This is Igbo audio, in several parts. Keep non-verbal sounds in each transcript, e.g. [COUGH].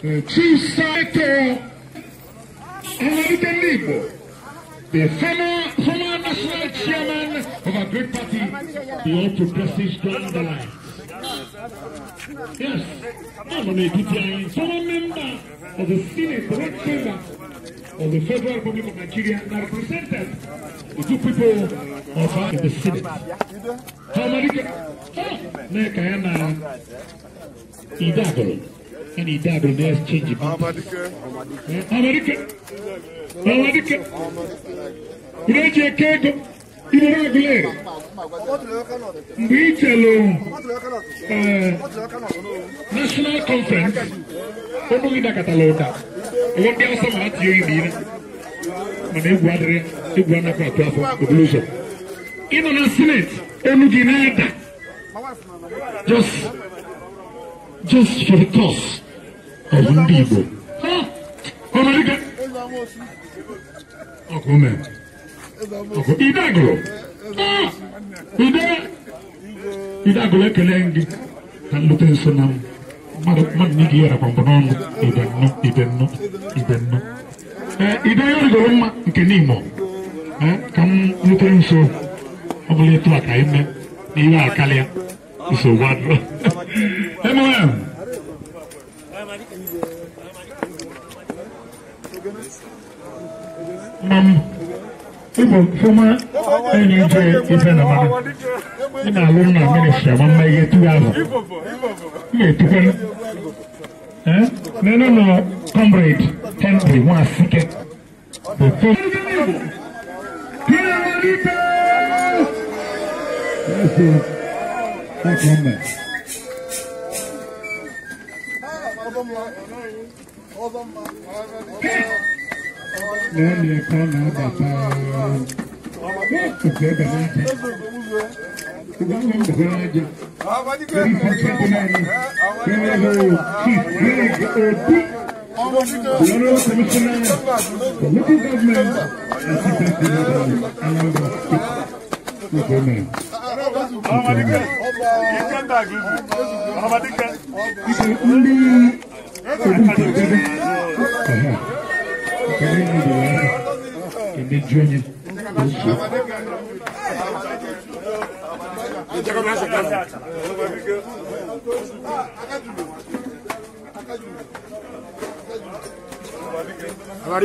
Eh, chief Senator American Igbo, the former, former national chairman of a great party, the All Progressive the line. Yes, I'm a APTI, former member of the Senate, the Red Chamber of the Federal Republic of Nigeria, and represented the two people of uh, the Senate. How many? Oh, Nekayana Idagoro. ẹni ìdá àdùn ní exchange mi. Amadike Amadike ìrẹ́jì ẹ̀ka ego ìrora agulẹ̀ mgbe itelu eh, national conference ọnụghị dakọtala ụda ụwa ndị awụsa ma ha tinye oyi n'ire mana egwu adịrị egwu anapụ atụ afọ obulu ụzọ ịnọ na senate enu gị na-ada just just for the cause of ndị Igbo idagụlụ ekele gị ka nlute nso na mmadụ na ige yarakwa mbụ n'ọnụ ibennọ ibennọ ide ya rigoro mma nke n'imo ka m Come nso ọ bụla etu a ka ime na ihe a karịa nsogbu adụrụ Emma. Mam, ibo kuma ɛni jɛ ife na mana ɛna alum na mene hyɛ ma mma yɛ tu azɔ yɛ tukɛ ɛ nene no comrade temple mu asikɛ bɛtɛ. Thank you. Thank you. lẹ́yìn ẹ̀kọ́ náà bàtà ọ̀gbẹ́ bẹ̀rẹ̀ jẹ ọgbẹ́ bẹ̀rẹ̀ bẹ̀rẹ̀ jẹ lórí pàṣẹ náà ni bẹ́ẹ̀ ló kí bẹ́ẹ̀ òbí lọ́rọ́ kọmíṣánná lókè gọ́ọ̀mẹ̀ntì àti bẹ́ẹ̀ bẹ̀rẹ̀ aláwọ̀ tó gọ́ọ̀mẹ̀ntì. Ọmọdé kẹ́ ọmọdé kẹ́ ọmọdé kẹ́. Agora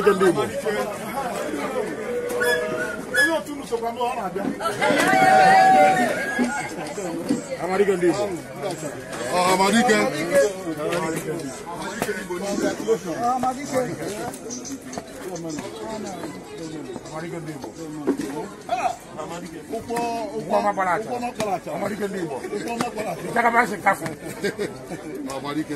que eu digo. soprano ana abia amarike ndi igbo amarike amarike igbo ni amarike amarike ndi igbo ụkwọ ụkwọ makpalacha amarike ndị igbo nchakabasi kafu amarike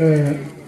嗯。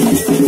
Thank you.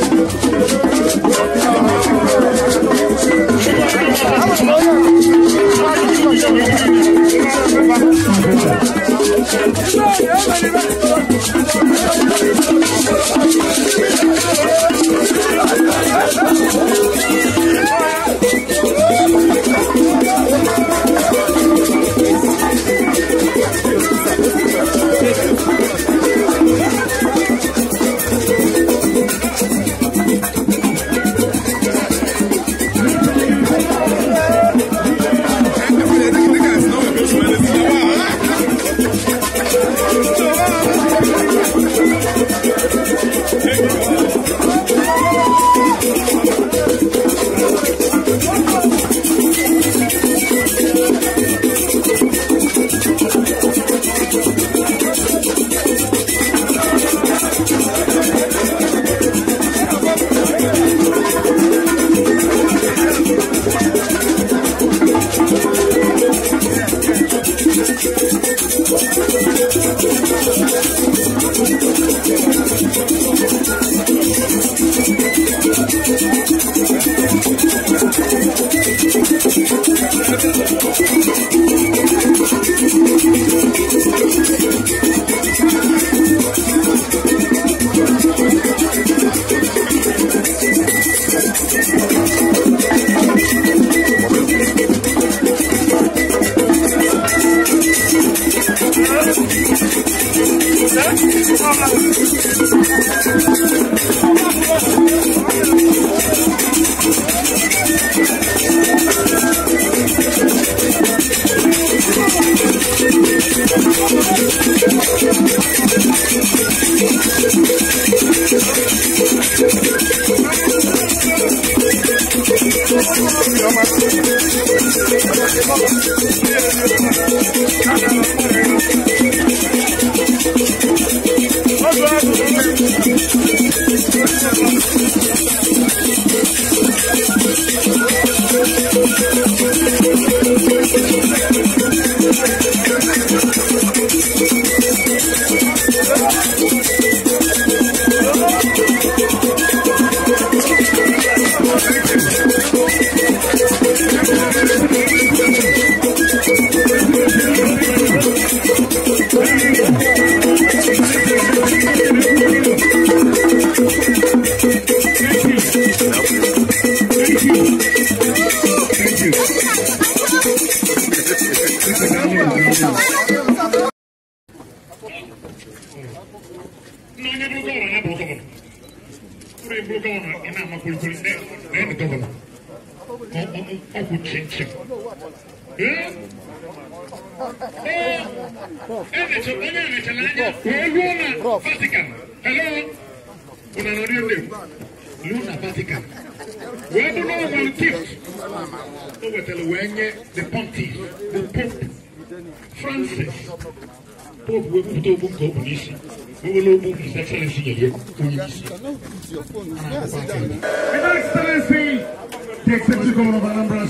Thank you.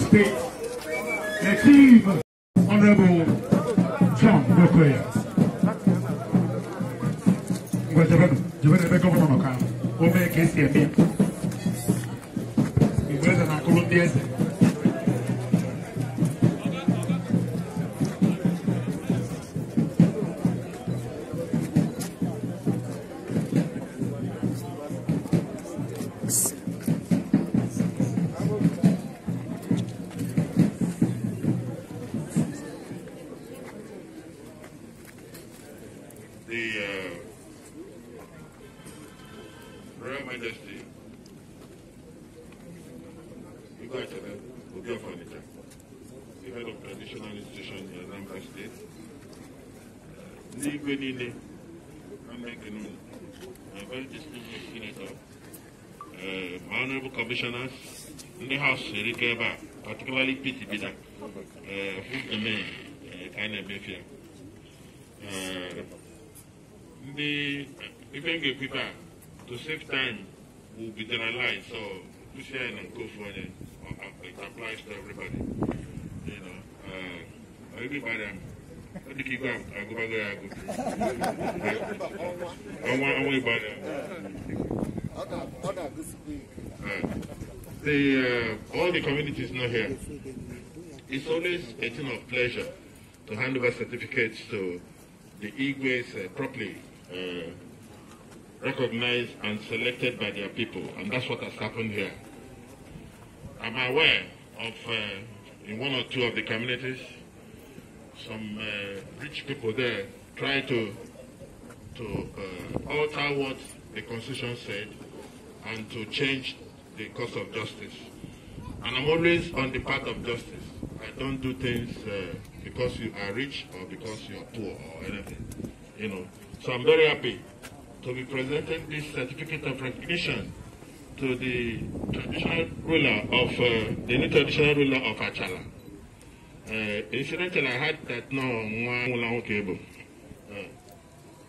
State, the Chief Honorable John Bokoya. Ngwa jabenu, jabenu ebe gọvanọ nọ ka o mee ka esi shirika ba particularly PTP da who remain kind of mafia ndị ife m ga to save time will be generalized so kwụsị share na go for onye uh, uh, it applies to everybody you know uh, everybody ọ dị ka igwe agụbago ya agụ ọnwa ọnwa ịgba ya The, uh, all the communities know here, it's always a thing of pleasure to hand over certificates to the Igwe's uh, properly uh, recognized and selected by their people, and that's what has happened here. I'm aware of, uh, in one or two of the communities, some uh, rich people there try to, to uh, alter what the Constitution said and to change the cause of justice. And I'm always on the path of justice. I don't do things uh, because you are rich or because you are poor or anything, you know. So I'm very happy to be presenting this certificate of recognition to the traditional ruler of uh, the new traditional ruler of Achala. Uh, incidentally, I heard that no Mwangulangokebo. Uh,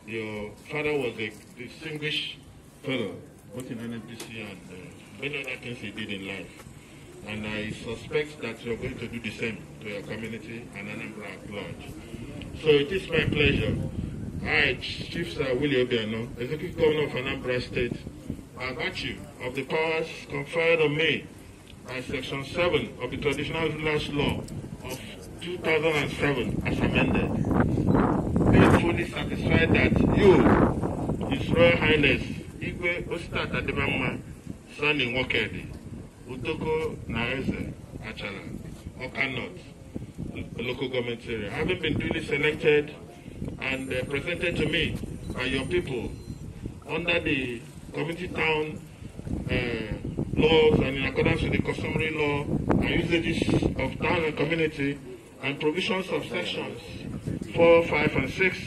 your father was a distinguished fellow, both in NMPC and uh, many other things you did in life. And I suspect that you're going to do the same to your community and Anambra at large. So it is my pleasure. I, Chief Sir Willie Obiano, Executive Governor of Anambra State, by virtue of the powers conferred on me by Section 7 of the Traditional Rulers Law of 2007 as amended, fully satisfied that you, His Royal Highness Igwe Ostat Ademama. Stanley Nwokedi, Utoko Achala, Okanot, local government area. Having been duly selected and uh, presented to me by your people under the community town uh, laws and in accordance with the customary law and usages of town and community and provisions of sections 4, 5, and 6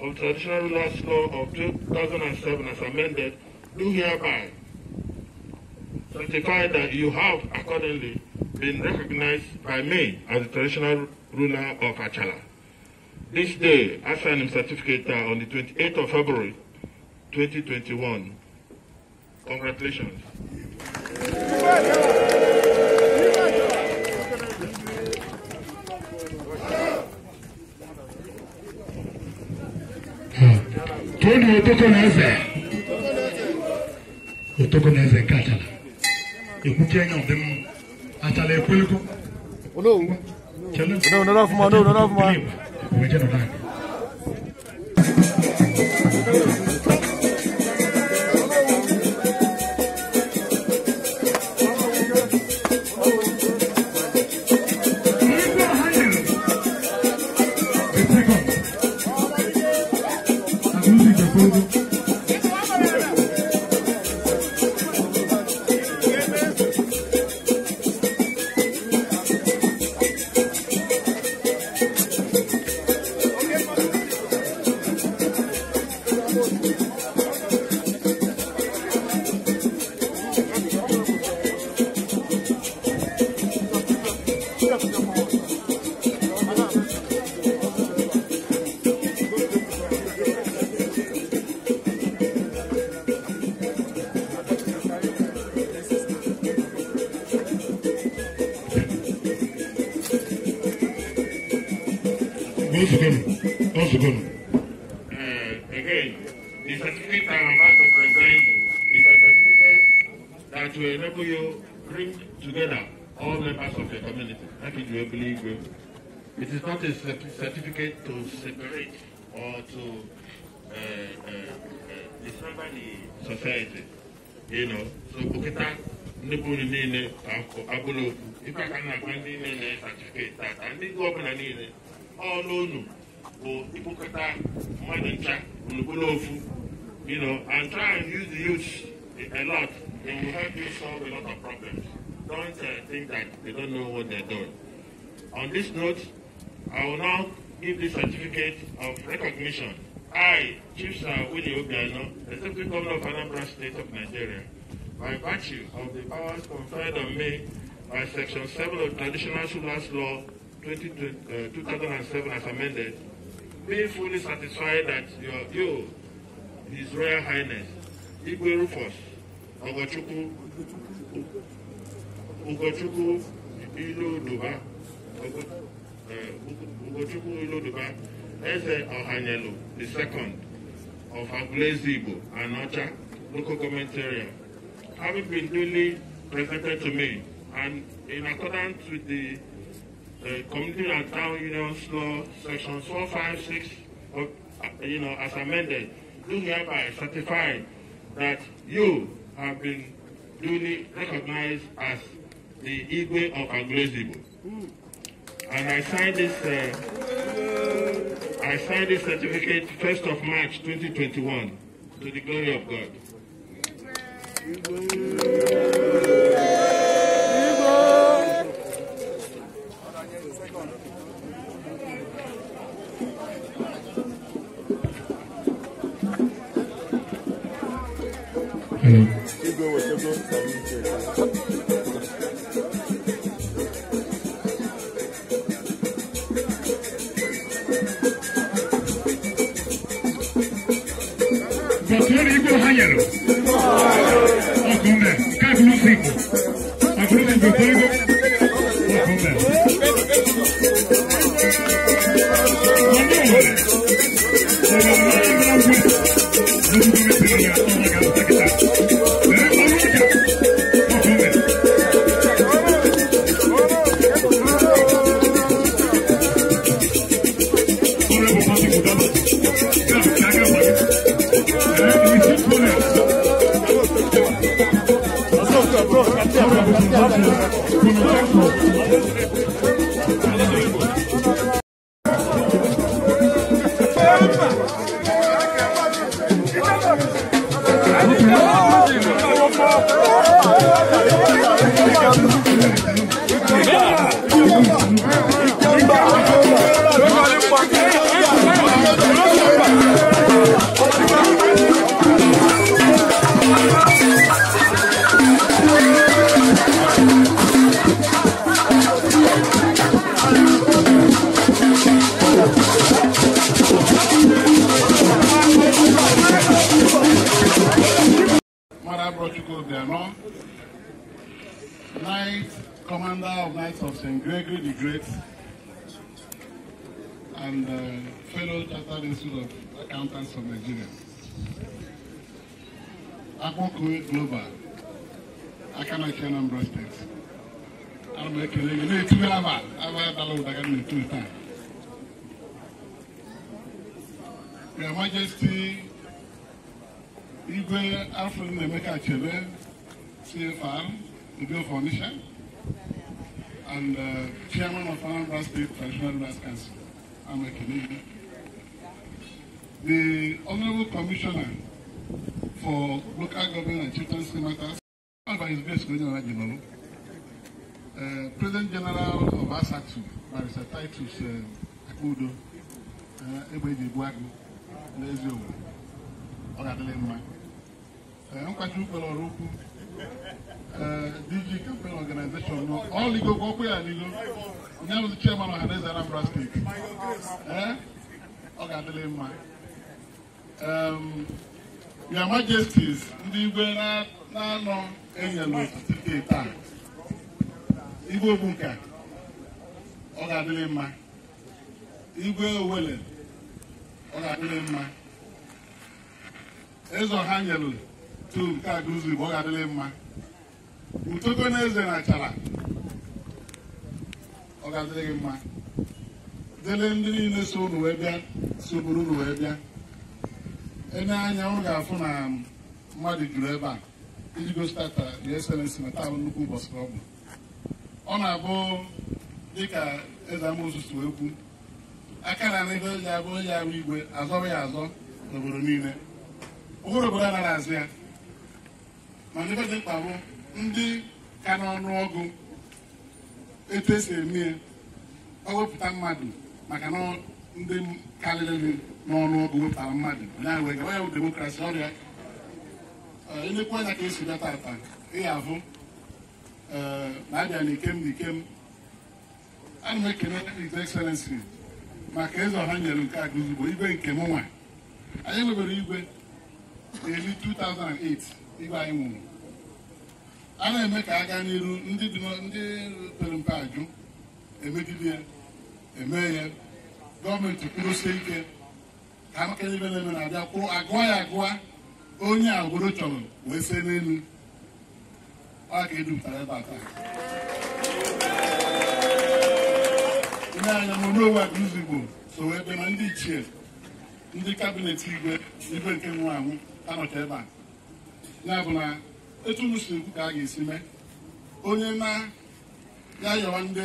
of the traditional rulers law of 2007 as amended, do hereby Certified that you have accordingly been recognized by me as the traditional ruler of Achala. This day, I signed him certificate on the 28th of February 2021. Congratulations. Hmm. Tony Otoko Neze. Otoko Neze Katala. ekutia nyɔnfɛn mu atala ekoliko. ono ono ono fuma ono ono fuma. o bɛ jɛ nɔ n'a ye. society. You know, so kukita nnukwu niile abụrụ okwu ife ka na-agwa ndị niile na-esatifikeeti tata ndị ọbụla niile ọrụ unu bụ ịkpụkọta mmadụ ncha unukwuru ofu you know and try and use the youth a lot it will help you solve a lot of problems don't uh, think that they don't know what they're doing on this note i will now give the certificate of recognition I, Chief Sir Winnie Obiano, Deputy Governor of Anambra State of Nigeria, by virtue of the powers conferred on me by Section 7 of Traditional Rulers Law 20, uh, 2007 as amended, being fully satisfied that your, you, His Royal Highness, Igwe Rufus, Ogochukwu, Duba, Iloduba, Ugochukwu Duba. Eze Ohanyelu, the second of Agulesibo and Ocha local government area, having been duly presented to me and in accordance with the uh, Community and Town Unions Law, Section 456, of, uh, you know, as amended, do hereby certify that you have been duly recognized as the Igwe of Agulesibo. And I sign this. Uh, I signed this certificate 1st of March 2021 to the glory of God. Hmm. people. St. Gregory the Great and uh, fellow Chartered Institute of Accountants of Nigeria. Akpọ Kuwait Global, Akanaki Anambra State. Ana m ekele gị na I've had aba adala ụda ka m na-etule taa. Your Majesty Igwe Alfred Emeka Achebe, CFR, Bill Foundation and uh, chairman of Anambra State Traditional Rulers Council. I'm a Canadian. The Honorable Commissioner for Local Government and Children's Matters, by His Grace General, uh, President General of ASATU, Mr. Titus uh, Akudo, uh, Ebeji Buagu, Lezio, Ọ̀gá Adelemma. Uh, Nkwájú Ukpere Ọ̀rọ̀ Ukwu, DG campaign organization nọ ọla igo ka ọ kwe ya n'igo onye bụzi chairman ọhaneze Anambra steeti eh? ọ ga-adịrị mma um, your majesties ndị igwe na-anọ enye n'otiti steeti taa igwe ogbunka ọ ga-adịrị mma igwe owele ọ ga-adịrị mma eze ọha nyelụ tu nke a ụzọ Igbo ọ ga-adịrị mma ntoko na eze na achara ọ ga-adịrị gị mma dele ndị niile so unu wee bịa sogburu unu wee bịa enye anya ọ ga-afụ na mmadụ juru ebe a iji gosipụta your uh, excellency na taa nnukwu ụbọchị ọ bụ ọ na-abụ dịka eze amụsụ si aka na ebe ji abụ onye ahụ igwe azọrọ ya azọ n'obodo niile ụbụrụ obodo anaghị azụ ya mana ebe dị mkpa bụ ndị ka n'ọnụ ọgụ etu esi eme ya ọ mmadụ maka na ndị karịrị n'ọnụ ọgụ wepụtara mmadụ onye bụ demokrasi ọrịa eh, elekwu anya ka esi bịa tata ịya ahụ eh, na-abịa n'ikem n'ikem ana m ekele his excellency maka eze ọha nyere nke a guzigbo igwe nke m anyị nwebere igwe eri 2008 igwe anyị nwụrụ a na-eme ka aga n'iru ndị ndị pere mpe ajụ emegide ya eme ya gọọmenti kwurusie ike ka amaka ibe na-eme na-abịa kwụrụ agụa ya agụa onye obodo chọrọ wee see n'elu ọ ga edupụtara ebe a taa ndị anya monowe abụzi igbo so ebe na ndị ichie ndị kabinet igwe igwe nke nwụrụ anwụ anọcha ebe a ya bụ na etu m si ekwu ka a ga-esi mee onye na-ya yọrọ ndị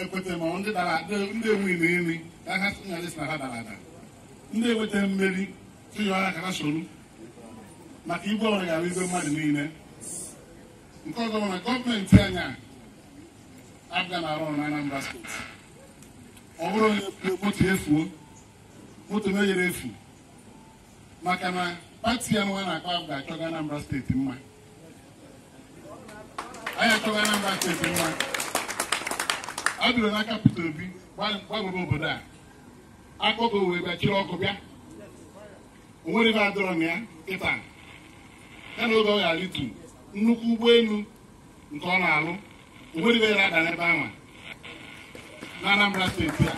ekweta ma ndị dara ndị enweghị na nri ka ha nyadịsị na ha dara ada ndị enweta mmeri tụyọọ ha ka ha soro maka igwe ọrụ gara igwe mmadụ niile nke ọzọ bụ na gọọmenti anyị abịa na arụ ọrụ na Anambra steeti ọ bụrụ onye moto efuo moto meyere efu maka na pati ya nwa na-akpa m ga-achọga Anambra steeti mma anyị achọga Anambra steeti mma a dụrụ n'aka Obi gbagoro obodo a akpọgo wee bịa ọkụ bịa o ebe adọrọ na ya kịta ya na oge ọ ghara alitu nnukwu ụgbọelu nke ọ na-alụ o nwere ebe ya ada n'ebe ahụ na Anambra steeti a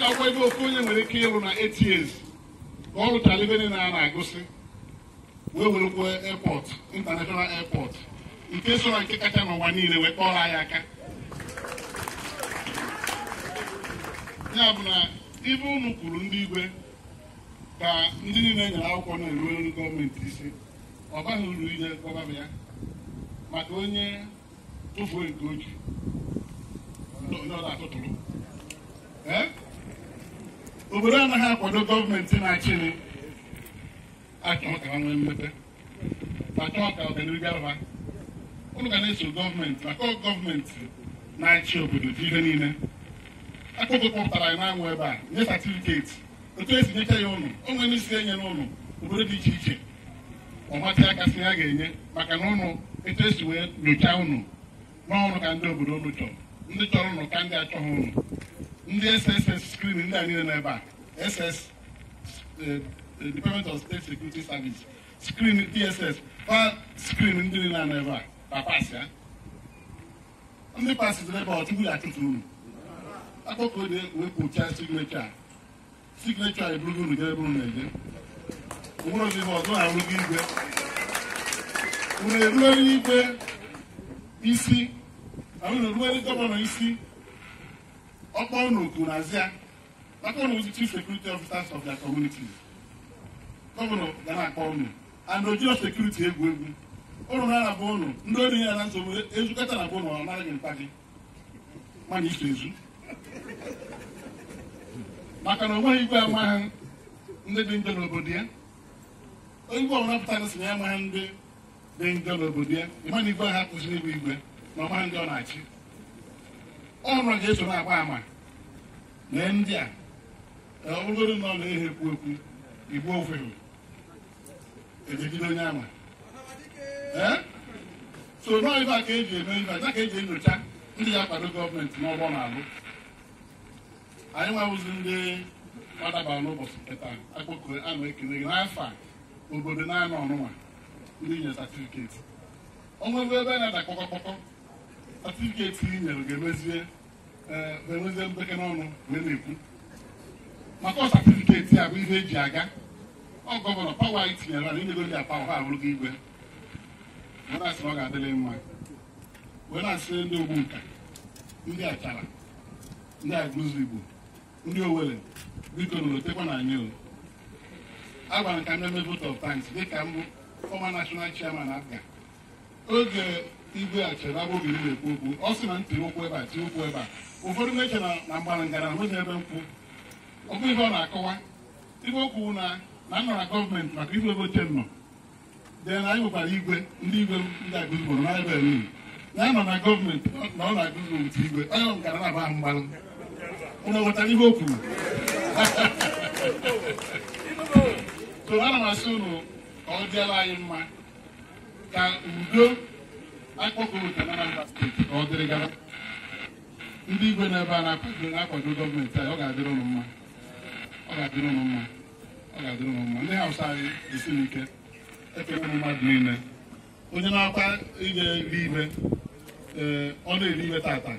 ya akwa ebe ofu onye nwere ike ịrụ na eight years ọrụ talibe niile a na-agụsị wee werekwa airport international airport nke sọrọ na nke kacha n'ụwa niile wee kpọrọ anyị aka ya bụ na ibe ụnụ kwuru ndị igwe ka ndị niile nyere akwụkwọ na-eru eru gọọmenti isi ọ baghị uru ije gọbaba ya maka onye tụfuo nke oji atụtụrụ obodo anaghị akwado gọọmenti na-achịrị achọ ka ha nwee mmepe achọ ka ọganihu gara ụnụ ga na-eso gọọmenti maka gọọmenti na-achị obodo dị ihe niile akụkọ kpọpụtara ya na-anwụ ebe a nye satifiketi otu esi nyecha ya ụnụ o nwere isi enye n'ụlọ obodo dị iche iche ọ matị aka si ya ga-enye maka na ụnụ etu esi wee nyochaa ụnụ n'ọrụ ka ndị obodo ụnụ chọrọ ndị chọrọ ụnụ ka ndị achọghị ụnụ ndị SSS skrin ndị a niile ebe a SS eh, eh, Department of State Security Service skrin DSS kwa skrin ndị niile a ebe a papas ya ndị pasịtịrị ebe ọchụkwụ ya achụtụ unu akpọkọ dị wepụcha signecha a signecha a eburugo unu jebe unu na-eje nwere ozi ihe ọzọ na-arụgo igwe unu eruere igwe isi na unu eruere gọvanọ isi ọkpọ unu kwuru n'azịa maka unu chief security officers of their communities gọvanọ ga na-akpọ unu and ojiro sekuriti egwu egwu ụnụ na-arabụ ụnụ ndị ori ya na nsogbu ezukọta na bụ ụnụ ọ naghị mkpa gị mana iso ezu maka na o nweghị igwe amaghị ndị dị njọ n'obodo ya igwe ọbụla pụtara si na ya amaghị ndị dị njọ n'obodo ya ịma na igwe ha kwụsịrị ịbụ igwe na ọmaghị ndị ọ na-achị ọrụ ga-eso na-agba ama na ndị a ọbụgoro na ọla ehe ekwu okwu igbo ofere ejigide onye ama so a ka eji eme iba ka eji enyocha ndị ya kwado gọọmenti n'ọgbọ na-alụ anyị nwewụzi ndị gbadabara n'ụbọchị kịta akpọkọ anụ ekele gị n'afọ obodo na-anọ ọnụnwa ndị nye satifiketi o oh, nwebe ebe a na-ada kpọkọkpọkọ atịrịketị i nyere ga-emezie mbeke n'ọnụ wee na-ekwu maka ọ satịfiketị a bụ ihe eji aga ọ gọvanọ pawa anyị tinyere na inyegoro ya pawa ha gị igwe wee na-asị na ọ ga-adịrị mma wee na-asị ndị ogbu nka ndị achara ndị agụzụ igbo ndị owere biko nolotekwa na anyị agwara m ka m na-eme vote of thanks dịka mbụ fọma national chairman abga oge igwe achọrọ abụghị m na-ekwu okwu ọ sị na ntiri ụkwụ ebe a tie ụkwụ ebe a ụfọdụ na-eche na mgbara ngara nweghị ebe nkwụ ọ bụ ihe ọ na-akọwa ibe okwu na na nọ na gọọmenti maka igwe ebe oche nọ de na anyị nwekwara igwe ndị igwe ndị agụziboro na ebe niile na ya na gọọmenti na ọ na-agụzi otu igwe onye ngara na-aba ahụ mgbalụ ụnụ ghọtara ihe o kwuru [LAUGHS] so ana m asị ụnụ ka ọ dịala anyị mma ka udo akpọkọta na Anambra steeti ka ọ dịrị gara ndị igwe ebe a na-akwado gọọmenti anyị ọ ga-adịrị ụnụ mma ọ ga-adịrị ụnụ mma ọ ga-adịrị ụnụ mma ndị hausa anyị esiri ike ekele mmadụ niile onye na-akwa inye ri ime ee eh, ọ na-eri ime tata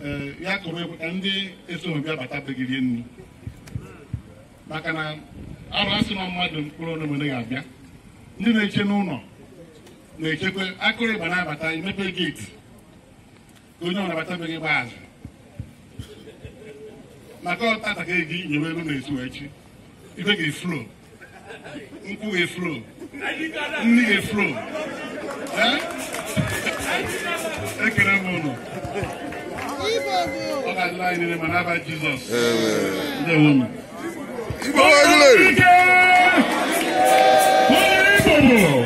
ee eh, ya kụrụ ekwe ka ndị esonobịa bata begirie nri maka na arụ asị na mmadụ mkpụrụ onye ga-abịa ndị na-eche n'ụlọ na-echekwa akụrịgba na-abata emepe geeti onye ọ nabatabeghị gba azụ maka ọtata ka eji nyewe elu na-esu echi ibe ga-eflo nkwụ ga-eflo nri ga-eflo ekele m ụlọ ọ ga-adịla anyị niile ma n'aba Jizọs ndewo m Igbo bụ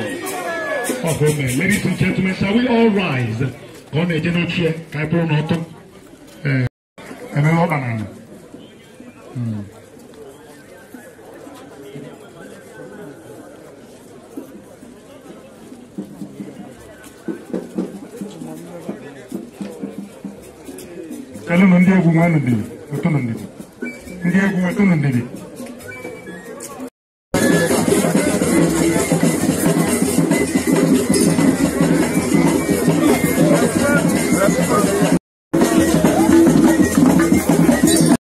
of women. Ladies and gentlemen, shall we all rise? Kọ́nà èdè náà tiẹ̀ ká É náà tó. Ẹ̀mí wọ́n bànà nù. Kẹ́lẹ́ nù ndí egwu nwa nù dìbì, ètò nù ndìbì. Ndí egwu ètò nù ndìbì.